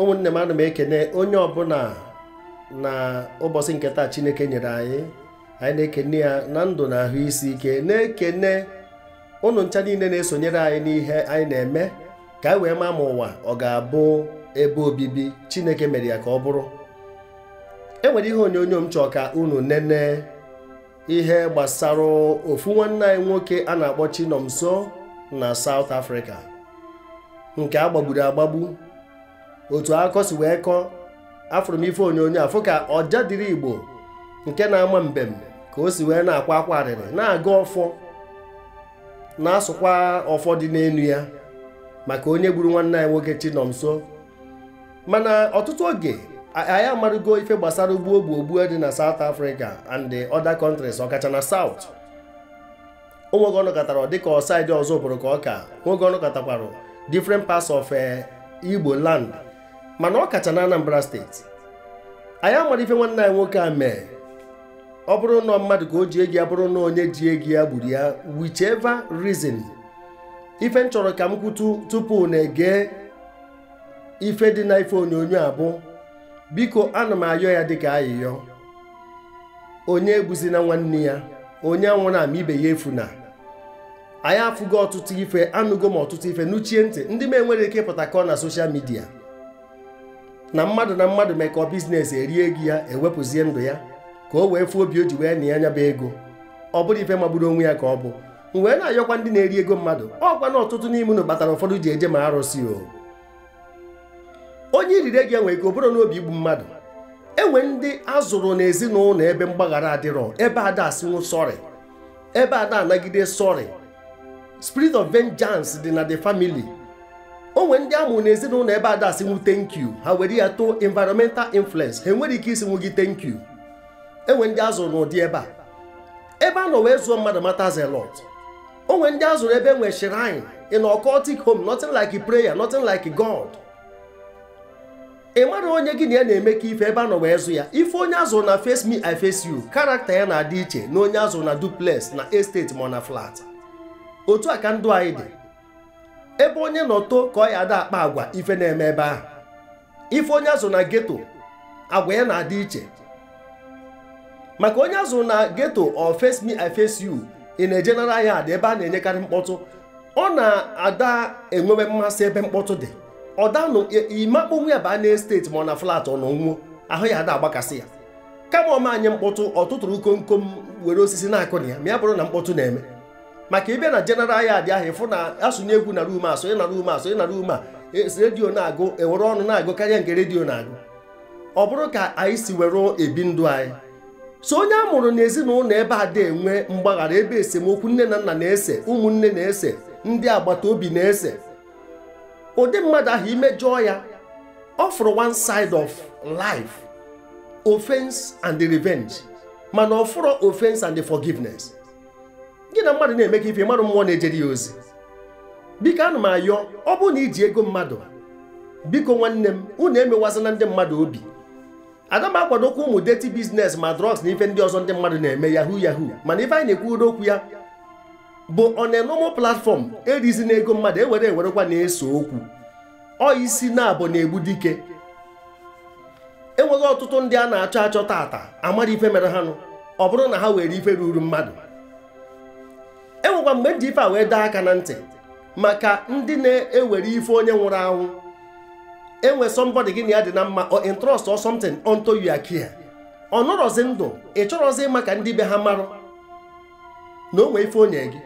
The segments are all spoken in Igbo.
ụmụnne m ana m ekene onye ọbụla na ụbọchị nke taa chineke nyere anyị anyị na-ekene ya na ndụ na ahụ isi ike na-ekene ụnụ ncha niile na-esonyere anyị n'ihe anyị na-eme ka anyị wee maa ma ụwa ọ ga-abụ ebe obibi chineke mere ya ka ọ bụrụ enwere ihe onyonyo m chọọ ka unu nene ihe gbasara ofu nwanne anyị nwoke a na-akpọ Chinomso na South Africa nke agbagburu agbagbu otu akọ wee kọọ afụrụ m ife onyonyo afụ ka ọja dịrị igbo nke na-ama mbem ka o si wee na-akwa akwa arịrị na-aga ọfọ na-asụkwa ọfọ dị n'elu ya maka onye gburu nwanne anyị nwoke Chinomso mana ọtụtụ oge anyị amarụgo ife gbasara ugbu ogbu ogbu dị na saut Africa and the other countries ọkacha na South onwege ọnụkọtara dịka ọsaidị ọzọ bụrụ ka ọka nwoge ọnụkọtakwara different pas of eh, Igbo land mana ọ kacha na Anambra steeti anyị amara ife nwanne anyị nwoke a mee ọ bụrụ na mmadụ ka o ji egi ya bụrụ na onye ji egi ya gburu ya whichever rizin ife m chọrọ ka m kwutu tupu na-ege ife dị na ife onyonyo abụ bụ biko ana m ayọ ya dịka ayịyọ onye egbuzina nwanne ya onye anwụrụ ama ibe ya efuna anyị afụgo ọtụtụ ife anụgo m ọtụtụ ife nuchie ntị ndị m enwere ike ịpụta ka ọ na soshal midia na mmadụ na mmadụ mekọọ biznes erie ego ya ewepụzie ndụ ya ka o wee fụọ obi o ji wee na anya nyaba ego ọ bụrụ ife magburu onwe ya ka ọ bụ wee na-ayọkwa ndị na-eri ego mmadụ ọ na ọtụtụ n'ime unu kpatara ụfọdụ ji eje ma arụsị o onye iriri ego enwe ego bụrụ n'obi igbu mmadụ enwe ndị azụrụ n'ezinụlọ ebe mgbaghara adịrọ ebe ada asịnwụ sọrị ebe ada anagide sọrị spirit of vengeance dị na the family onwe ndị amụrụ n'ezinụlọ ebe ada asị nwu thank you ha were ya too environmental influence ha enwere ike isi nwu gị thank you enwe ndị azụrụ n'ụdị ebe a ebe a nọ wee zụọ mmadụ matters a onwe ndị azụrụ ebe enwe shrine in occultic home nothing like prayer nothing like God ị mara onye gị na ya na-eme ka ife ebe a nọ wee zụ ya ife onye azụrụ na face me I face you karakta ya na-adị iche na onye azụrụ na duplex na estate ma na flat otu a ka ndụ anyị dị ebe onye nọto ka ọ ya ada akpa agwa ife na-eme ebe ahụ ife onye azụ na geto agwa ya na-adị iche maka onye azụ na geto or oh, face me I face you a general yard ebe a na-enyekarị mkpọtụ ọ na-ada enwewe mmasị ebe mkpọtụ dị ọ danụ imakponwu ya baa na esteti ma ọ na flat ọ nọ ahụ ya ada agbakasị ya kama ọma anyị mkpọtụ ọ tụtụrụ komkom were osisi na-akụ na ya ma ya bụrụ na mkpọtụ na-eme maka ịbịa na jeneral yad ahụ ịfụ na asụnye egwu na rum asụnye na rum asụnye na rum a e, redio na-agụ ewere ọnụ na-agụ karịa nke redio na-agụ ọ bụrụ ka anyị si were ebi ndụ anyị so onye a mụrụ n'ezinụlọ ebe a dị enwe mgbaghara ebe esemokwu nne na nna na-ese ụmụnne na-ese ndị agbata obi na-ese ụdị mmadụ ahụ imejọọ ya ọ fụrụ one side of life offense and revenge mana ọ fụrụ offense and forgiveness gị na mmadụ na-eme ka ife mmadụ mmụọ na-ejere ya ozi biko ana m ayọ ọ bụrụ na iji ego mmadụ biko nwanne m unu emewazana ndị mmadụ obi aga m akwadokwa ụmụ deti biznes ma drugs na ife ndị ọzọ ndị mmadụ na-eme yahu yahu mana ife anyị na-ekwu okwu ya bụ on platfọm normal erizi na ego mmadụ ewere ewerekwa na-eso okwu ọ isi na-abụ na-egbu dike enweghị ọtụtụ ndị a na-achọ achọ tata amara ife mere ha nụ ọ bụrụ na ha were ife ruru mmadụ enwekwa mgbe m ji ife a wee daa aka na ntị maka ndị na-ewere ife onye nwụrụ anwụ enwe somebody gị na ya dị na mma or trust or something you are ọ nọrọzi ndụ ị chọrọzi maka ndị be ha marụ na onwe ife onye gị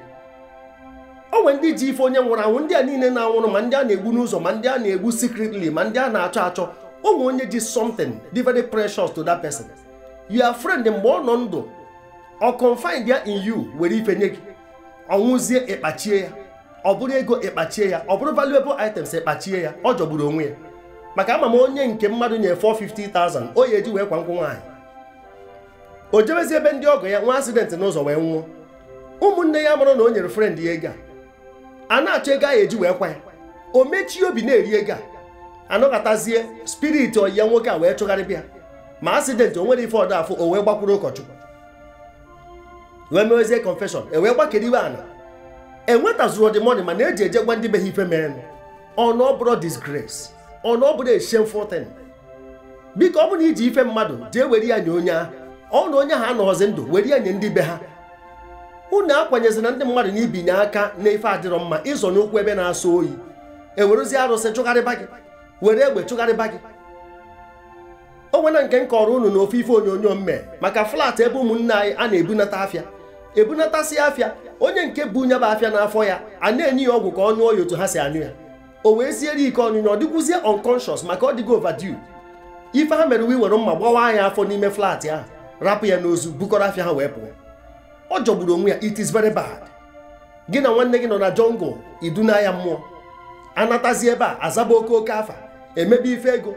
nwe ndị ji ife onye nwụrụ anwụ ndị a niile na-anwụrụ ma ndị a na-egbu n'ụzọ ma ndị a na-egbu secretly ma ndị a na-achọ achọ onwe onye ji something dị very precious to that person your friend mgbe ọ nọ ndụ ọ confide ya in you were ife nye gị ọnwụzie ịkpachie ya ọ bụrụ ego ịkpachie ya ọ bụrụ valuable items ịkpachie ya ọ jọgburu onwe ya maka ama m onye nke mmadụ nye 450,000 o ya eji wee kwa nkwụ nwaanyị o jebezi ebe ndị ọgọ ya nwa asidentị n'ụzọ wee nwụọ ụmụnne ya mụrụ na o nyere frend ya ego a na-achọ ego ahụ eji wee kwa ya o mechie obi na-eri ego a anọkọtazie spirit ọyi ya nwoke a wee chụgharịbịa ma asidentị o nwere ife ọdọ afọ o wee gbakwuru ụkọchukwu E wee mewezie confession ewee gbakedewe ana enwetazuru ọdịmọdị mana eji eje gwa ndị be ha ife mere ọnụ na ọ bụrụ disgrace ọ na biko ọ bụ na iji ife mmadụ jee were ya nye onye ahụ ọ na onye ha anọghọzi ndụ were ya nye ndị be ha unu akwanyezina ndị mmadụ na ibinye aka na ife adịrọ mma ịzọ n'ụkwụ ebe na-asọ oyi ewerezie arụsị chụgharịba gị were egbe chụgharịba gị o nke nke m kọrọ unu na ofe ife onyonyo mme maka flat ebe ụmụnne anyị a na-ebunata afịa ebunatasị afịa onye nke bụ nyaba afịa n'afọ ya a na-enye ya ọgwụ ka ọ nyụọ ya otu ha si anyụ ya o wee siere ike ọnyụnya ọ dịkwuzie unconscious maka ọ dịgo overdue ife ha mere uwe were mma gbawa ya afọ n'ime flat ahụ rapụ ya n'ozu bukọrọ afịa ha wee pụọ ọ jọgburu onwe ya it is very bad gị na nwanne gị nọ na jungle iduna ya mmụọ anatazi ebe a azaba oke oke afa emebe ife ego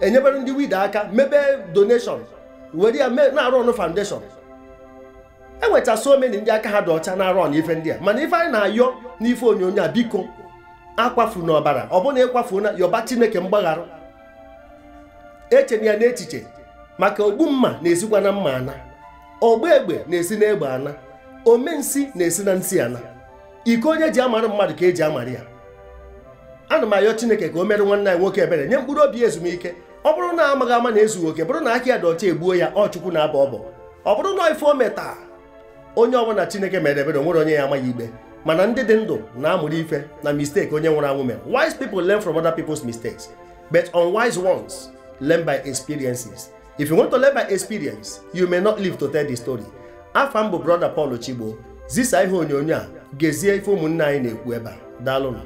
enyebere ndị wid aka mebe donation were ya na-arụ ọnụ foundation e so many ndị aka ha dị ọcha na arụ na n'ife ndị a mana ife anyị na-ayọ n'ife onyonyo a biko akwafu n'ọbara ọ na ịkwafu na yọba chineke mgbaghara echena ya n'echiche maka ogbu mma na-esikwa na mma ana ogbu egbe na-esi na egbe ana omensi na-esi na nsị ana iko onye ji amarụ mmadụ ka eji amara ya ana m ayọ chineke ka o mere nwanne anyị nwoke ebere nye mkpụrụ obi ezumike ọ bụrụ na amaghị ama na ezughị oke bụrụ na aka ya dị ọcha egbuo ya ọ chukwu na-abọ ọbọ ọ bụrụ na ife o metaa onye ọbụla chineke mere ebere onwere onye ya amaghị igbe mana ndị dị ndụ na-amụrụ ife na mistake onye nwụrụ anwụ mere wise people learn from other people's mistakes but unwise ones learn by experiences if you want to learn by experience you may not live to tell the story afa m bụ brother Paul Chigbo zisa ihe onyonyo a gezie ife ụmụnne anyị na-ekwu ebe a daalụnụ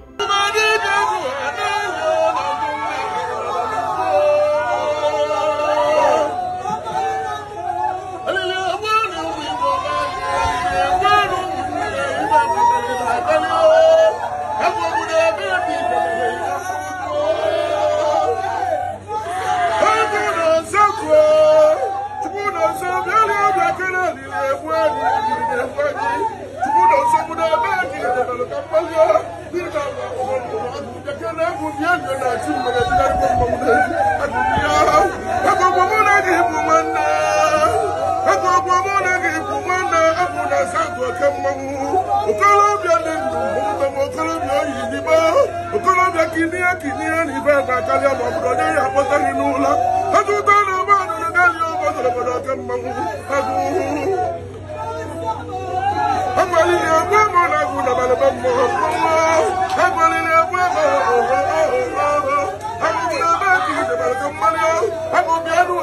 ọmọdé kìnìún kìnìún ní ìfẹ́ ìgbà kálí ọmọ ọmọdé ní ìyàpọ̀tẹ́ nínú ńlá ẹtùn tó lọ bá nínú kálí ọmọ tòlòbòdò ọ̀kẹ́ mọ̀mú ẹtùn. agbali ni ẹgbẹ́ mọ̀ lẹ́gùn dàbàlẹ̀ bẹ́ mọ̀ ọ̀pọ̀ agbali ni ẹgbẹ́ mọ̀ ọ̀pọ̀ agbali ni ẹgbẹ́ kì í dàbàlẹ̀ kẹ́ mọ́lẹ́ agbọ̀bí ẹnu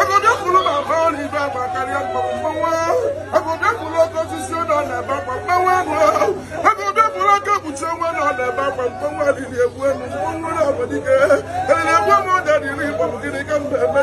agbọ̀bí ẹkùnrin máa fọ́ ní ìfẹ́ ìgbà kálí ọmọ mọ̀mọ́ agbọ̀bí ẹkùnrin ọkọ̀ ṣiṣẹ́ náà nà ama mkpọnwụ adịrị egbu elu mkpọnwụ na-abụ dike eriri egbu m ụja dịrị igbo bụ gịnị ka m na-eme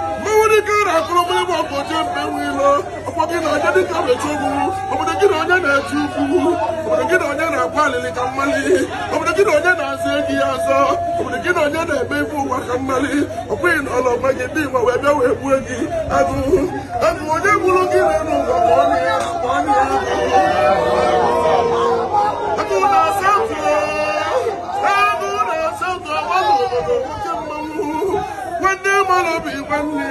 gị na onye dịka mmechi obodo gị na onye na-eti ukwu obodo gị na onye na-agwa alịlị ka mmali obodo gị onye na-azụ ego ya azọ obodo gị na onye na ebe ibu ụwa ka mmali ọ bụghị na ndị onye na ụwa ma ọ na-ya ma na-ya agụ na-asa ntụ agụ nwanne nwanne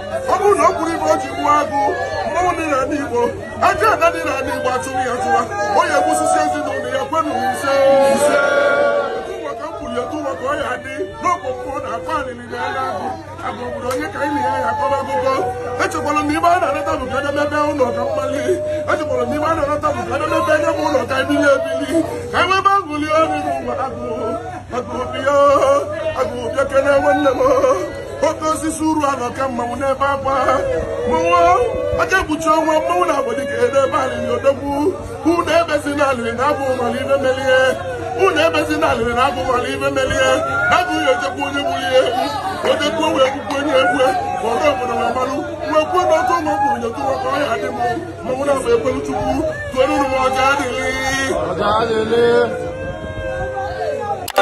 ọ bụrụ na ọ kwuru ibe o ji gbuo agụ mmọnwụ dị Igbo ajọ ada dị n'ala Igbo atụrụ ya tụwa ọ ya egbusisi ezinụlọ ya kwenu ise ụmụaka ka ọ dị na akpa na ọ. ya akọba akụkọ echekwara m ibe a na-anata bụ ka edemebe ụlọ ka mkpali echekwara ibe a na-anata bụ ka nye ụlọ ka ebili ebili ka e nwebe agụli ọrụ n'ụwa agụ agụ m oke osisi uru anọ ka mmanwụ n'ebe akwa mmanwụ aka ekpuchi ọnwa mmanwụ na abọdị ka ede ebe alịrị odogwu ebezi na na abụ mala ibe melie ebezi na alịrị na abụ mala ibe melie na abụghị odogwu onye gburu ihe egwu odogwu wee onye egwu ọrụ obodo ma kwuo na ọkụ ụmụ kwuru nyetụ maka adị m mmanwụ na abụ ekwelu chukwu tụeruru m ọja adịghị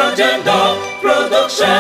Agenda Production